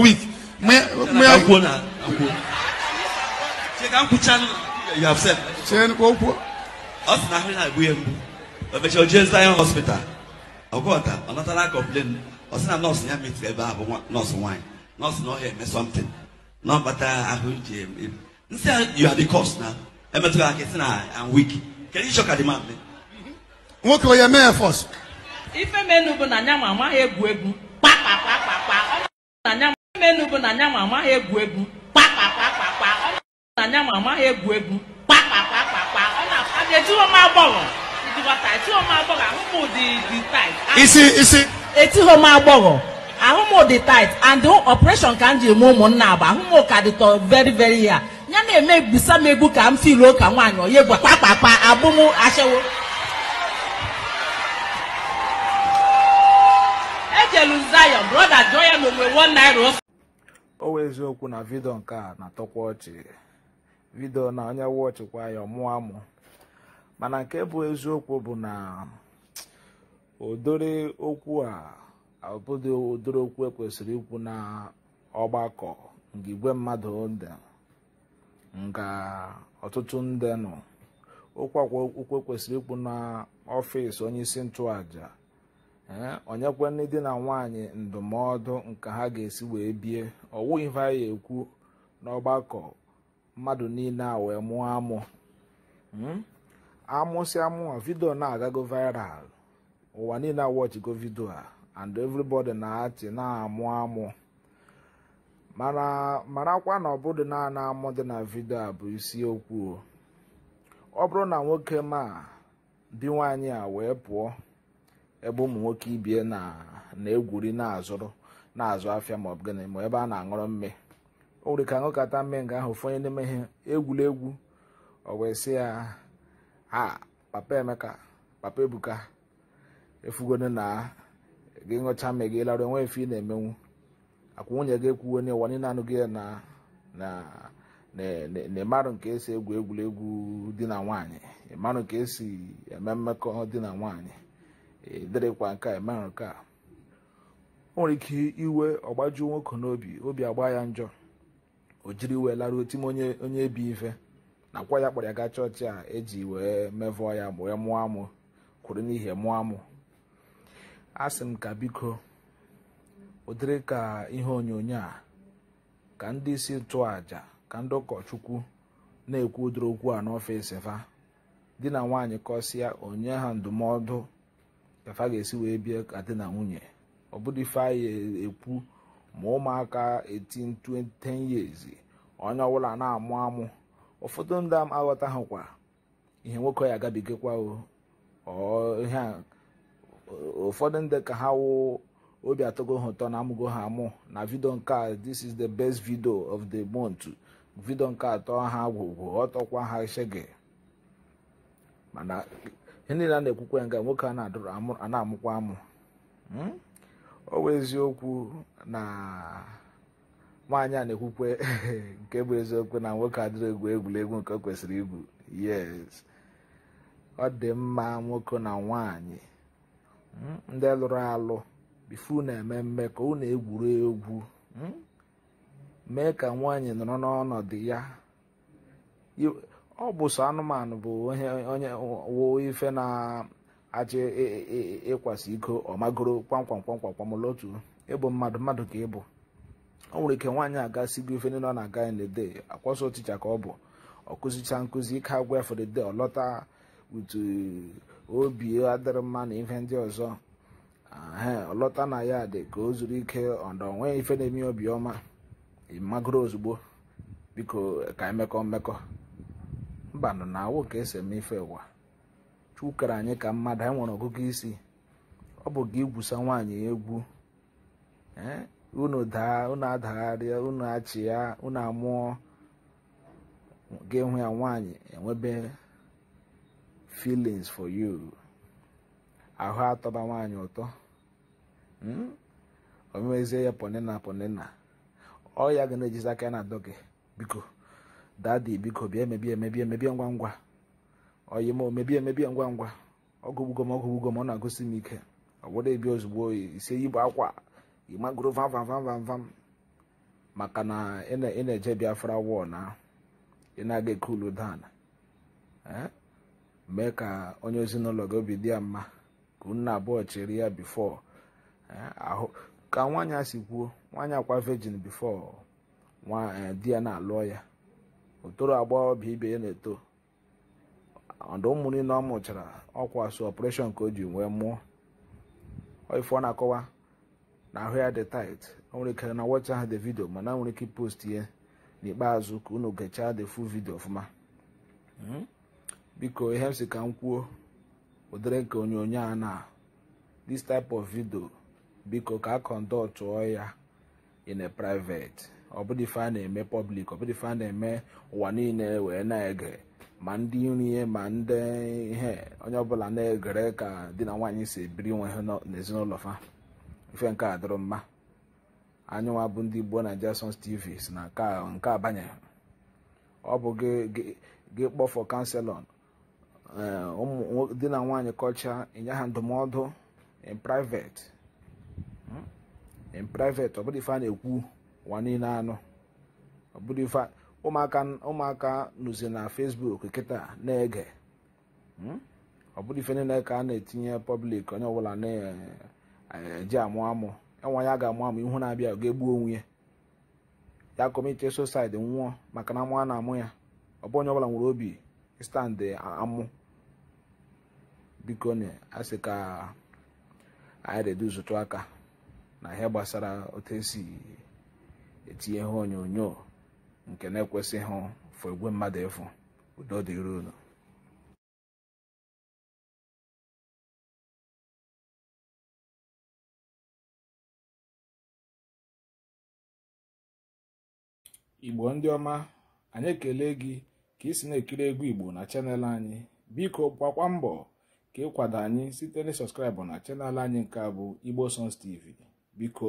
week. kyɛn ko ko. ɔsina ahwɛ na abu yɛ mbu ɔbɛkyɛ ɔgyina zion hospital ɔkɔɔta ɔnatala complain ɔsina nurse ya meet ɛbɛ abo nurse wine nurse na ɔyɛ mɛ something na ɔbata ahwɛ gye nsia you are the cause na ɛmɛtɔ akɛse na i'm weak can you shock adima mi. nwoke ɔyɛ mayor force. ife menu bụ na nya mama egwu egwu kpakpakpakpakpa ọ na nya menu bụ na nya amaghị egwu egwu kpakpakpakpakpa amaghị egwu egwu m agbọghọ dị and operation ka m ji eme ụmụnna ahụ m ka dịtọ very very ya ya na-eme egbusa m egbu ka m filuo ka nwaanyị onye gwa kpakpakpa abụ m ejelu Zion brọda jụọ ya na onwe naira o wee eziokwu na vidio nke a na-atọkwa ọchị vidio na onye ọchịkwa ya ọmụọ mana nke bụ eziokwu bụ na odori okwu a ọbụdị odori okwu ekwesịrị ikwu na ọgbakọ nke igwe mmadụ dị nga ọtụtụ ndị nọ okwu akwa okwu ekwesịrị ikwu na ọfịs onye isi onyekwe ndị di na nwaanyị ndụmọdụ nke ha ga-esi wee bie ọwụ ife anyị ekwu n'ọgbakọ mmadụ niile a wee mụọ amụ hmm? amụsịa mụọ vidio na-agago viral ụwa niile awọchigo vidio a and everybody na-achị na-amụ amụ marakwa na ọbụdị naanị amụ dị na vidio a bụ isiokwu ọ bụrụ na nwoke ma di nwaanyị a wee pụọ ebe ụmụ nwoke ibie na-egwuri na-azụrụ na-azụ afịa ma ọ bụ gịnị ma ebe a na-aṅụrụ mme o nwere ka aṅụkata mme nga ahụ ụfọdụ n'ime ihe egwuregwu ọ wee sị ya ha papa emeka papa ebuka efugone na gị ṅụcha mme gị larụ enwe efe ị na-emenwu akwụ nwunye gị ekwuo n'ịwa niile anụghị gị na na ịmarụ nke esi egwu egwuregwu di na nwanyị ịmarụ nke esi eme mmekọ di na nwaanyị ịdịrịkwa nke a emere nke a o nwere ike iwe ọgbaju nwoke n'obi obi agba ya njọ o jiri wee laruo tim onye onye ebi ife nakwa ya kpọrọ ya gaa chọọchị a eji wee mevọ ya wee mụọ amụ kwuru n'ihi mụọ amụ a sị m ka biko ụdịrị ka ihe onyonyo a ka ndị isi nchụàja ka ndị ụkọchukwu na-ekwu ụdịrị okwu a n'ọfịs fa di na nwaanyị kọsịa onye ha ndụmọdụ ka ga-esi wee bie ka di na nwunye ọ bụrụ ife anyị ekwu ma ụmụaka 18 10 years onye ọbụla na-amụ amụ ụfọdụ ndị hụkwa ihe nwoke ya agabigakwa ụfọdụ ndị ka ha wụ obi atọgo ha ụtọ na amụgo ha amụ na vidio nke a this is the best video of the month vidio nke atọ ha gwụgwụ ọtọkwa ha shege mana ihe niile a na-ekwukwa nga nwoke a na amụkwa amụ ọ bụ eziokwu na nwaanyị a na-ekwukwe nke bụ eziokwu na nwoke adịrị egwu egwuregwu nke o kwesịrị igwu yes ọ dị mma nwoke na nwaanyị hmm? ndị lụrụ alụ bifu na-eme mmekọ unu egwuru egwu hmm? mee ka nwaanyị nọrọ n'ọnọdụ ya ọ bụ sọ anụmanụ bụ onye woo ife na-achị e, e, e, ịkwasị iko ọmagoro kwamkwam kwamkwam kwamlotu ịbụ mmadụ mmadụ ka ịbụ o nwere ike nwaanyị aga si gị ife nọ ọ na-aga in the day akwọsọ ticha ka ọ bụ ọkụzicha nkụzi ike agwa for the day ọlọta utu uh, obi adịrị mma na ife ndị ọzọ ọlọta na ya dị ka o zuru ike ọdọ onweghị ife na-eme obiọma magoro ozugbo biko ka emekọ mmekọ mbanụ na awụ ka esi eme ife ụwa chukere anyị ka mmadụ anyị nwere ọgụgụ isi ọ bụ gị igwusa nwaanyị egwu unu daa unu adagharịa unu achị ya unu amụọ gị enwe ya nwaanyị enwebe feelings for you ahụ atọba nwaanyị ụtọ hmm? omezie ya ponina ponina ọ ya ga na-ejizi aka ya na adọ biko dadi biko bịa emebie emebie emebie ngwa ngwa oyi m omebie emebie ngwa ngwa ọgụgbugo m ọgụgbugo m ọ na-agụsi m ike ọbụrụ ebi ozugbo isi bụ akwa ịmagoro vam vam vam vam maka na ị na-eje biafra wọl na ị na-aga ekulu dan eh? mee ka onye ezinụlọ gị obi dị ya mma ka unu abụọ chịrị ya bifọ eh? ahụ ka nwaanyị a si kwuo nwaanyị akwa vejin bifọ nwa eh, di ya na-alụọ ya otoro bụ ibe ya na-eto ọdụ ụmụ niile ọ mụchara ọkwa so ọpụreshọn ka o ji wee mụọ ife ọ na-akọwa na ahụ ya dị tait o nwere ike na wọcha ha dị vidio mana nwere ike post ihe n'ikpeazụ ka unu gechaa dị fu vidio ọfụma hmm? biko ihe m si ka m kwuo ụdịrị nke onyonyo a na this type of video biko ka a kọndọtụọ ya in a private ọbụdịfe a na-eme pọblik ọbụdịfe a na-eme ụwa niile wee na-ege ma ndị nri ma ndị ihe onye ọbụla na-egere ka di na nwaanyị si ebiri nwe ha n'ezinụlọ fa ife nke a dịrị mma anyịnwa bụ ndị gboo na jason TV na nke abanyeghị ọ bụ gị kpọfọ kanselọn eh, ụmụ di na nwaanyị kọcha ịnye ha ndụmọdụ in private hmm? in private ife a na-ekwu ụwa anụ ọbụrụ ife ụmụaka ụmụaka nụzi na fesbuk kịta na-ege ọbụrụ hmm? ife niile ka a na-etinye pọblik onye ọbụla na-eji eh, amụ amụ ya ga-amụ amụ ihu na-abịa ga-egbu onwe ya ya kọmiti sosaid nwụọ maka na amụ na-amụ ya ọ bụ onye ọbụla nwere obi stand amụ biko na asị ka anyị reduzutu aka na ihe gbasara otu esi etinye ihe onyonyo nke na-ekwesịghị fụ igwe mmadụ ịfụ udo dịrị unu igbo ndị ọma anyị ekele gị ka ị si na-ekiri egwu igbo na chanel anyị biko gbakwa mbọ ka ịkwado anyị site na sọskraịbụ na chanel anyị nke a bụ igbo sons tv biko